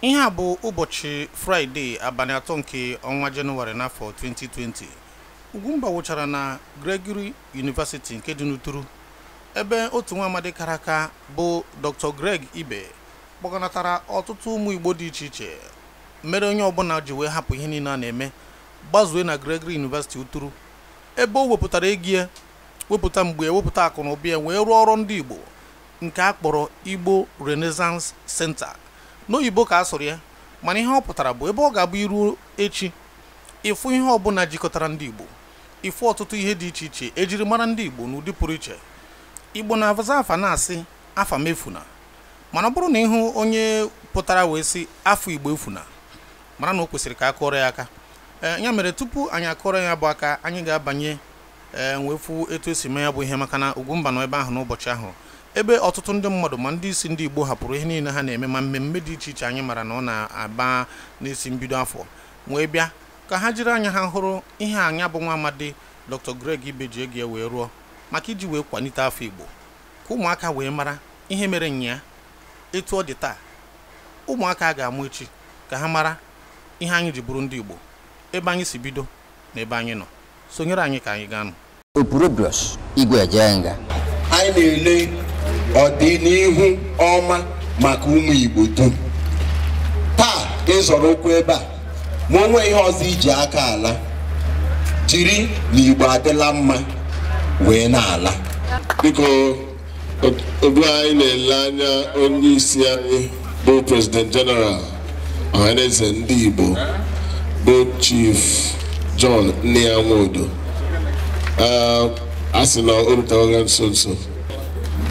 ihe a bụ ụbọchị fraịde abalị atọ nke ọnwa jenụwarị n'afọ 2020 ugwumba wụchara na gregory university nke dị n'uturu ebe otu nwa amadi kara aka bụ dr greg ibe kpọganatara ọtụtụ ụmụ igbo dị iche iche mere onye ọbụla ji wee hapụ ihe niile a na-eme gbazue na gregory university uturu ebe o wepụtara ego wepụta mgbe wepụta akụ na ụbịa wee rụọ ọrụ ndị igbo nke a kpọrọ igbo renaissance center n'oyibo ka a sụrụ ya mana ihe ọ pụtara bụ ebe ọ ga-abụ iru echi ịfụ ihe ọbụla jikọtara ndị Igbo ịfụ ọtụtụ ihe dị iche iche ejiri mara ndị Igbo n'ụdị pụrụ iche Igbo na-abaza afa na-asị afa mefuna mana ọ bụrụ na ịhụ onye pụtara wee sị afọ Igbo efuna mara na o kwesịrị ka akụọrọ ya aka eh, ya mere tupu anyị akụọrọ ya bụ aka anyị ga-abanye eh, ee fụ etu esi mee ya bụ ihe maka na Ugwumba nọ ebe ahụ n'ụbọchị ahụ ebe ọtụtụ ndị mmadụ ma ndị isi ndị Igbo hapụrụ ihe niile ha na-eme ma mmemme dị iche iche anyị mara na ọ na-aba n'isi mbido afọ wee bịa ka ha jiri anya ha hụrụ ihe anya bụ nwa amadi Dr. Greg Ibeji Ege wee rụọ maka iji wee kwalite afọ Igbo ka ụmụaka wee mara ihe mere nya etu ọ dị taa ụmụaka ga-amụ echi ka ha mara ihe anyị ji bụrụ ndị Igbo ebe anyị si bido na ebe anyị nọ sonyere anyị ka anyị gaa nụ igwe eje anyị na-ele Ọ ọdịnihu ọma maka ụmụ Igbo dum taa ịzọrọ ụkwụ ebe a ma onwe ihe ọzọ iji aka ala jiri na Igbo adịla mma wee na-ala biko obi anyị na-ele anya onye isi anyị bụ Prezident general ọhaneze ndị Igbo bụ chief John Nnia Nwodo a sị na o nso nso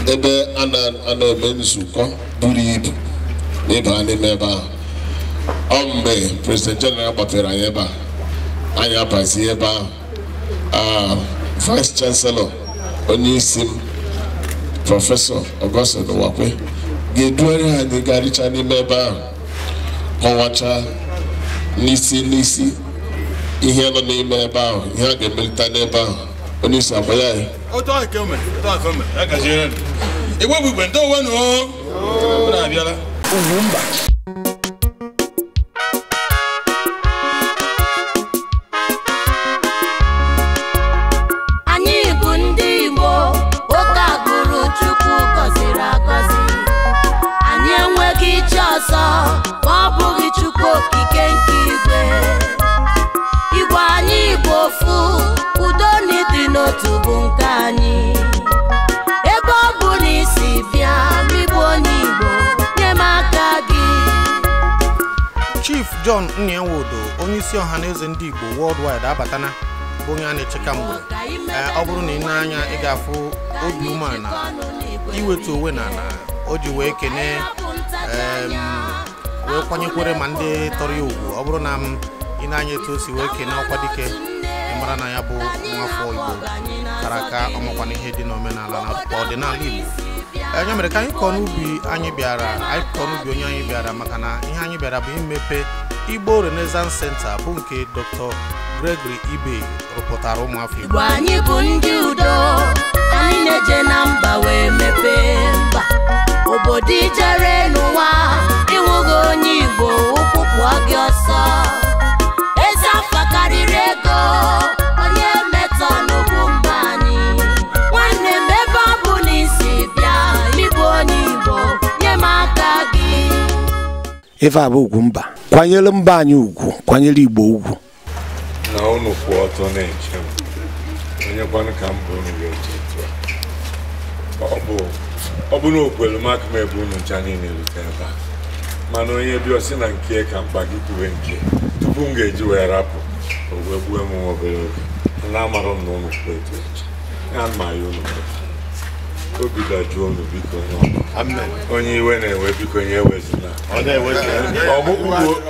ebe a na-eme nzukọ buru ibu ịba n'ime ebe ahụ ọ mgbe president general kpọtere anyị ebe a anyị abazie ebe ahụ vice chancellor onye isi m prọfesọ Augustine Nwakwe ga-eduere anyị ga n'ime ebe ahụ kọwacha n'isi n'isi ihe nọ n'ime ebe ahụ ihe a ga-emelite n'ebe ahụ Oni sanfɔya ye. O tɔgɔ ye kɛmɛ mɛ, o tɔgɔ ye fɛn mɛ, a ka se yɛrɛ de. Ìwé wọ́n nù ọ́. Ó nà bíọ́lá. bà. Anyị John onye isi ọha na eze ndị Igbo worldwide abatana bụ onye a na echeka mgbe ọ bụrụ na ị na-anya ị ga-afụ obi umeala iwetu onwe na ala o ji wee kene wee kwanyekwere ma ndị tọrọ ya ugwu ọ bụrụ na m ị na-anya etu o si wee kene ọkwa dike mara na ya bụ nwafọ Igbo kara aka ọmakwana ihe dị n'omenala na ọdịnala Igbo enye mere ka anyị kọọ n'ubi anyị bịara anyị kọọ n'ubi onye anyị bịara maka na ihe anyị bịara bụ imepe Igbo Renaissance Center bụ nke Dr. Gregory Ibe rụpụtara ụmụafọ Igbo anyị bụ ndị udo anyị na-eje na mba wee mepee mba obodo ijere n'ụwa ịnwụghị onye Igbo ụkwụkwụ gị ọsọ eze afọ karịrị ego onye metọ n'ugwu mba anyị nwanne m ebe ọ na bịa ịbụ onye Igbo nye m aka gị ife a bụ ugwu mba kwanyere mba anyị ugwu kwanyere igbo ugwu na unu kwụ ọtọ na-eche m onye kwanụ ka m unu ga-eche etu ọ bụ na okwelu m aka ebe unu ncha niile rute ebe a mana onye bịa ọsị na nke ka mkpa gị kwuwe nke tupu m ga-eji wee rapụ o wee gbuo m obere oge na amarọ m na unu kwụ etu eche ya mma ya unu obi dajụọ unu biko onye iwe na-ewe biko nye ewezụla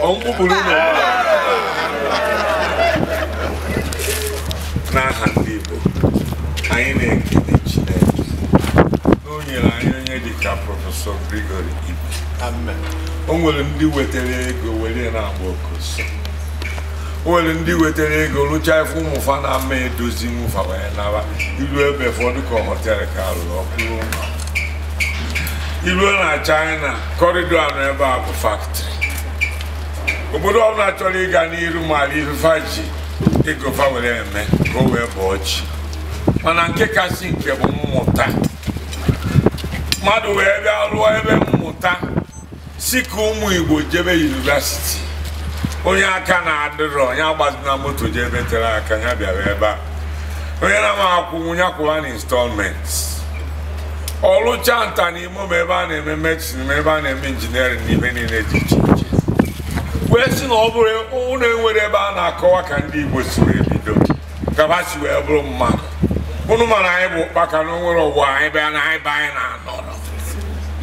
ọmkpụkpụrụ ụlọ n'aha ndị Igbo anyị na-ekele Chineke o nyere anyị onye ka prọfesọ Grigori ibe o nwere ndị wetara ego were na-agba okoso nwere ndị wetara ego rụchaa ife ụmụfa na ama edozi nwụfa wee naba iru ebe ụfọdụ ka họtel ka rụrụ ọkpụrụ ụlọ iruo na china kọrịdọ anọ ebe a bụ faktịrị obodo ọbụla chọrọ ịga n'iru mara ifefa ji ego fa were eme ka o wee bụọ chi mana nke kasị nke bụ mmụta mmadụ wee bịa rụọ ebe mmụta si ka ụmụ igbo jebe yunivasiti onye aka na-adịrọ onye agbazina moto ji ebe tere aka ya bịara ebe a onye na-ama akwụnwu ya kwụwa na instalment. ọlụcha nta n'ime m ebe a na-eme medicine ma ebe a na-eme injiniarin n'ime niile dị iche iche wee sị na ọ bụrụ ụlọ enwere ebe a na-akọwa ka ndị igbo si wee bido gaba si wee bụrụ mmadụ ụnụ mana anyị bụ ụkpaka na onwere na anyị be anyị na-anọ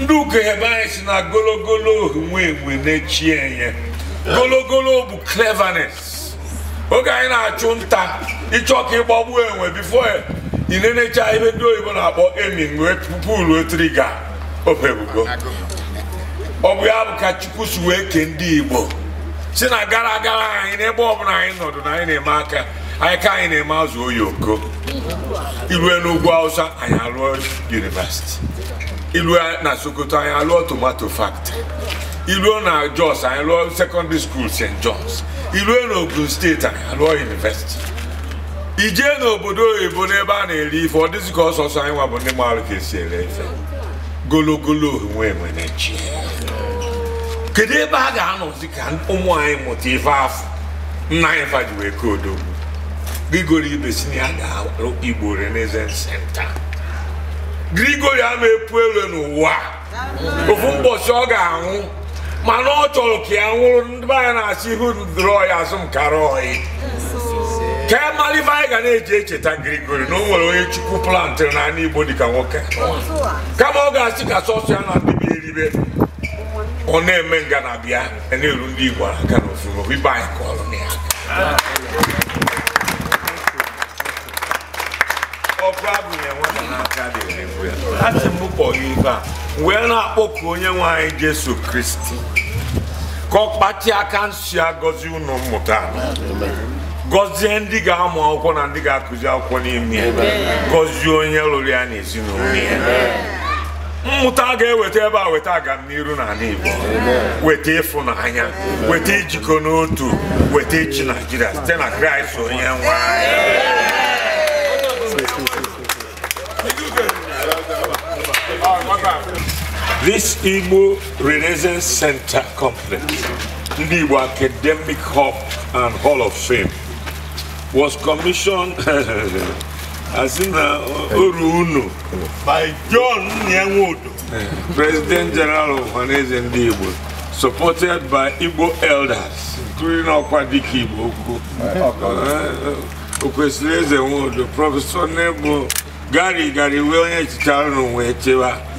ndị ụka ebe anyị si na gologolo ohu nwe enwe na-echi enye gologolo bụ cleverness oge anyị na-achụ nta ịchọ ka ịgbagbu enwe bifo na-enecha ebe ndị oyibo na-akpọ emin wee pupu obebugo ọ bụ ya bụ ka chukwu si wee kee ndị igbo si na gara aga anyị n'ebe ọbụla anyị nọdụ na anyị na-eme aka anyị ka anyị na-eme azụ oyoko ilue n'ugwu hausa anyị alụọ university ilue na sokoto anyị alụọ tomato factory iluo na Jos anyị lụọ sekọndịrị skuul St. John's ilu na ogun steeti anyị lụọ yunivesiti ijee n'obodo oyibo n'ebe a na-eri ife ọ dịzị ka ọsọsọ anyị nwabụ bụ ndị maara ka esi ere ife gologolo onwe nwere chi kedu ebe a ga-anọzi ka ụmụ anyị mụta ife afọ nna anyị faji wee kodogbu grigori ibe si na ya ga-arụ igbo renaissance center grigori ama epu elu n'ụwa ofu mbọchị ọ ga-anwụ mana ọ chọrọ ka ya nwụrụ ndị anyị na-asị ihu ndụrọ ya azụ m kara ọyị ka ya e mara anyị ga na-eji echeta ngirigori na o nwere onye chukwu plantịrị n'ala igbo dịka nwoke kama ọ ga-asị ka sọsọ ya na dịbịa eribe ọ na-eme nga e na-eru ndị igbo aka na ofufo ibe anyị kọrọ na ya ọkụ abụghị nwata n'aka dị erigbu ya asị m kpọrọ ife a wee na-akpọku onye nwe anyị jesu kristi ka ọ kpachi aka nsi agọzi ụlọ mmụta gọzie ndị ga-amụ akwụkwọ na ndị ga-akụzi akwụkwọ n'ime ya gọzie onye lụrụ ya na ya mmụta ga-eweta ebe a weta agamniru n'ala Igbo weta ịfụnanya weta ijikọ n'otu weta echi Naijiria site na Kraịst onye nwe This Igbo Renaissance Center complex, the Igbo Academic Hub and Hall of Fame, was commissioned as in uh, Oruunu by John Nyangodo, President General of Hanese and Igbo, supported by Igbo elders, including Okwadiki Igbo, uh, uh, Okwesile Zenwodo, Professor Nebo, Gary Gary William Chicharano Wechewa,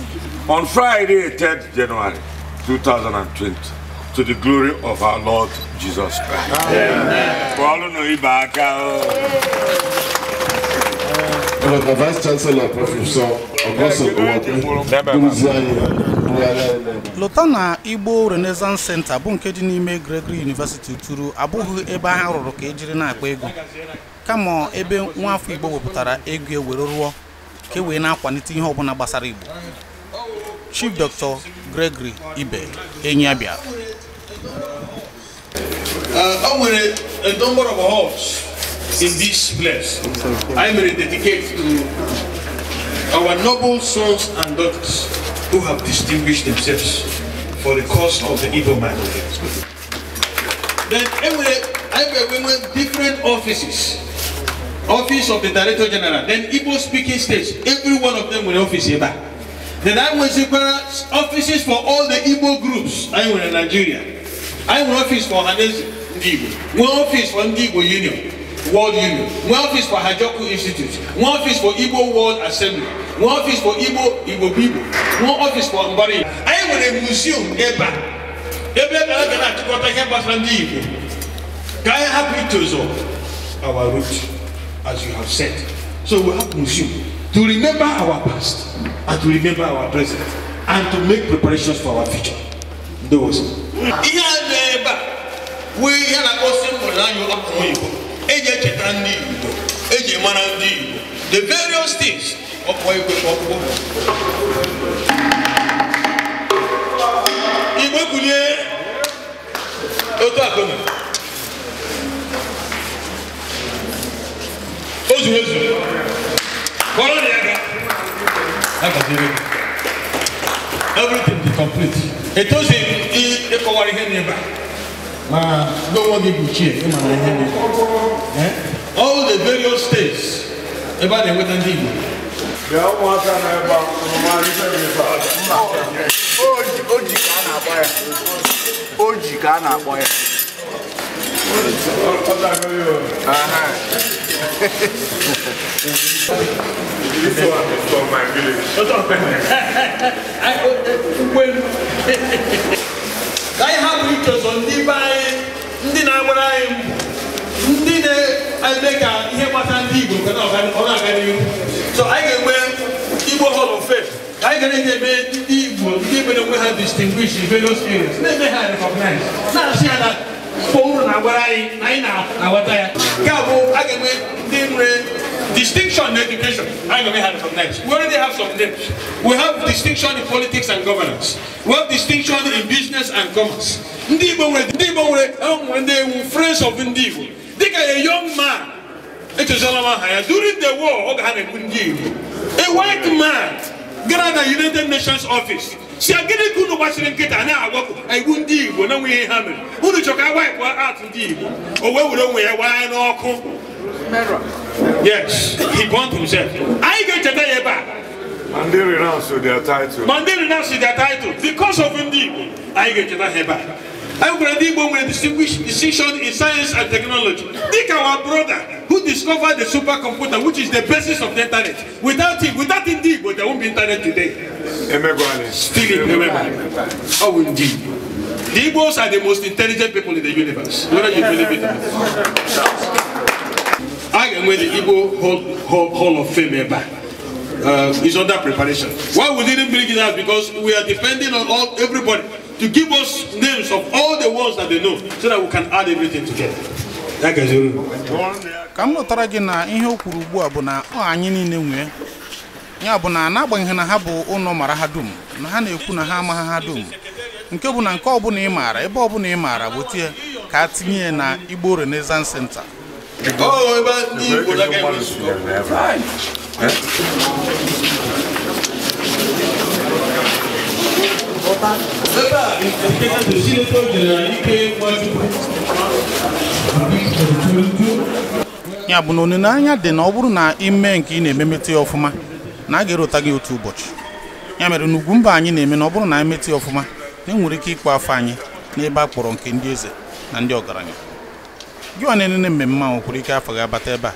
on Friday, 3rd January 2020, to the glory of our Lord Jesus Christ. Amen. The Vice Chancellor, Professor Augustine na Igbo Renaissance Center bụ nke dị n'ime Gregory University turu abụghị ebe ha rụrụ ka ejiri na-akpa egwu kama ebe nwa afọ Igbo wepụtara egwu ewere rụọ ka e wee na-akwalite ihe ọbụla gbasara Igbo Chief Doctor Gregory Ibe Enyabia. Uh, I a number of halls in this place. I will dedicate to our noble sons and daughters who have distinguished themselves for the cause of the Igbo minority. Then I will, I will different offices office of the director general then igbo speaking states every one of them will office here back Then I offices for all the Igbo groups. I went in Nigeria. I went office for Hanes Igbo. One office for Igbo Union, World Union. One office for Hajoku Institute. One office for Igbo World Assembly. One office for Igbo Igbo people. One office for Mbari. I went a museum Eba. Ebe gara gara achịkọta ihe gbasara ndị Igbo. Ka anyị hapụ itozo our root as you have said. So we have museum to remember our past and to remember our present and to make preparations for our future. Those. Ihe dị ebe a wee ya na osi mbụ anyị akpọrọ Igbo eji echeta ndị Igbo eji mara ndị Igbo the various things ọkpọ igwe ọkpụkpọ. Igbo kwulie otu akụnụ. O zuru ezu. Kọrọ ya ga na gajere bi everything dey complete etozi ịkọwara ihe n'ebe ma n'onwe gị gbochie ịma na ihe n'ebe all the various states ebe a na-enweta ndị igbo bịa ụmụaka na ebe a oji ka a na-akpọ ya oji ka a na-akpọ ya this one is from my village. What's up, man? when I have pictures on the by ndị na-agbara anyị ndị na-eme ka ihe gbasara ndị Igbo ka ọ na-aga n'ihu so anyị ga-enwe Igbo Hall of Fame anyị ga na-eme ndị Igbo ndị mere onwe ha distinguish various areas na-eme ha recognize na-asị ha na Paul na-agwara anyị na anyị na-aghọta ya nke a bụ a ga-enwe ndị nwere distinction in education a ga-enwe ha from names we already have some names we have distinction in politics and governance we have distinction in business and commerce ndị Igbo nwere ndị Igbo nwere enwere ndị ewu friends of ndị Igbo dịka a young man echezọla m aha ya during the war oge ha na-ekwu ndị Igbo a white man gara na United Nations office si agịnị ka unu gbachiri nkịta na-agwapụ igbu ndị igbo na nwunye ha mere unu chọka awapụ atụ ndị igbo o wee were onwe ya wee n'ọkụ yes he burnt himself anyị ga-echeta ya ebe a And they renounce their title. And they renounce their title because of ndị Igbo. Anyị ga-echeta ha ebe a. Everybody will distinguish decision in science and technology. Think our brother who discovered the supercomputer, which is the basis of the internet. Without him, without indeed, but there won't be internet today. Still remember. How Oh, indeed. The Igbos are the most intelligent people in the universe. Whether you believe it or not. I am with the Igbo Hall, Hall, Hall of Fame ever uh, is under preparation. Why we didn't bring it out? Because we are depending on all everybody. to give us names of all the ones that they know so that we can add everything together. ka m lụtara gị na ihe o kwuru ugbu a bụ na ọ anyị niile nwee ya bụ na n'agbanyeghị na ha bụ ụlọ mara ha dum na ha na-ekwu na ha amaghị ha dum nke bụ na nke ọbụla ị maara ebe ọbụla ị maara gbotie ka a tinye ya na Igbo Renaissance Center oh, Remember, Ike ya bụ na olileanya dị na ọ bụrụ na ime nke ị na-ememete ya ọfụma na a ga-erota gị otu ụbọchị ya mere n'ugwu mba anyị na-eme na ọ bụrụ na anyị metị ọfụma na enwere ike ịkpọ afọ anyị n'ebe a kpọrọ nke ndị eze na ndị ọgaranya gị ọ na-enene mmemme ahụ kwuru ike afọ ga-abata ebe a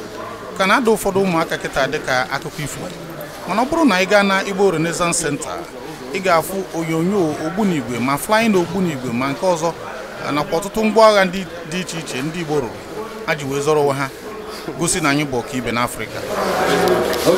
ka na-ada ụfọdụ ụmụaka kịta dịka akụkọ ifo mana ọ bụrụ na ị gaa na Igbo Renaissance Center ị ga-afụ onyonyo ogbunigwe ma flying ogbunigwe ma nke ọzọ nakwa ọtụtụ ngwa agha dị iche iche ndị Igbo rụrụ a ji wee zọrọ onwe ha gosi na anyị bụ ọka ibe n'Afrịka um,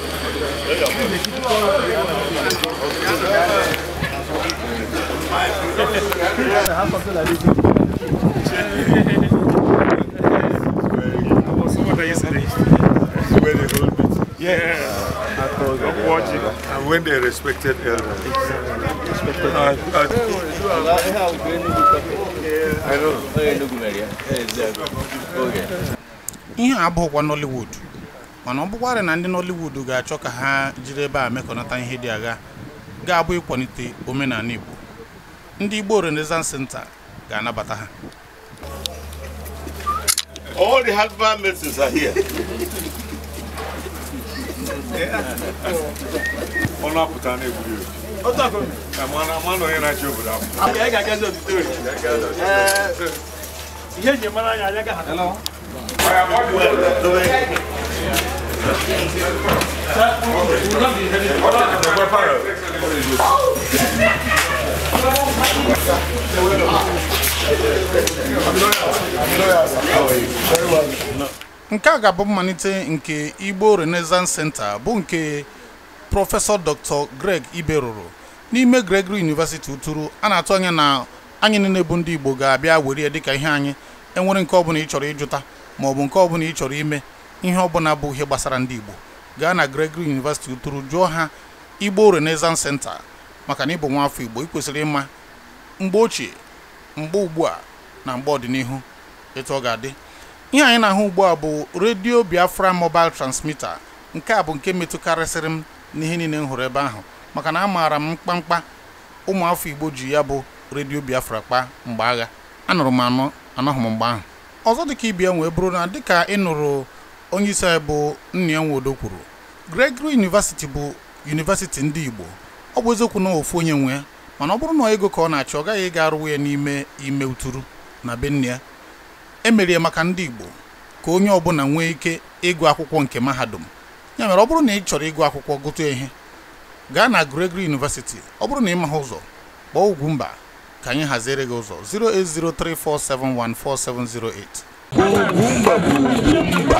when they respected elders. Exactly. I don't know. Ihe Nollywood. mana ọ bụkwarị na ndị Nollywood ga-achọ ka ha jiri ebe a mekọnata ihe dị agha ga-abụ ịkwalite omenala Igbo ndị Igbo Renaissance Center ga-anabata ha All the husband maidens are here. Ihe eji mara anyị anya gaghị nke a ga-abụ mmalite nke Igbo Renaissance Center bụ nke prọfesọ Dr. Greg Ibe rụrụ n'ime Gregory University Uturu a na-atụ anya na anyị niile bụ ndị Igbo ga-abịa were ya dịka ihe anyị enwere nke ọbụla ị chọrọ ịjụta maọbụ nke ọbụla ị chọrọ ime ihe ọbụla bụ ihe gbasara ndị Igbo gaa na Gregory University tụrụ jụọ ha Igbo Renaissance Center maka na ịbụ nwa afọ Igbo ị kwesịrị ịma mgbe ochie mgbe ugbu a na mgbe ọdịnihu etu ọ ga-adị ihe anyị na-ahụ ugbu a bụ redio Biafra mobile transmitter nke a bụ nke metụkarịsịrị m n'ihe niile m hụrụ ebe ahụ maka na amaara m mkpamkpa ụmụafọ Igbo ji ya bụ redio Biafra kpa mgbe agha anụrụ m anọ anọghị m mgbe ahụ ọzọ dịka ibia nwee bụrụ na dịka ị nụrụ onye isi anyị bụ nna ya nwodo kwuru Gregory University bụ yunivesiti ndị Igbo ọ bụ eziokwu na ofu onye nwe mana ọ bụrụ na ego ka ọ na-achọ ọ gaghị ịga arụwa ya n'ime ime uturu na be nne ya emerie maka ndị Igbo ka onye ọbụla nwee ike ịgụ akwụkwọ nke mahadum ya mere ọ bụrụ na ị chọrọ ịgụ akwụkwọ gụta ihe gaa na Gregory University ọ bụrụ na ị maha ụzọ kpọọ mba ka anyị haziere gị ụzọ 08034714708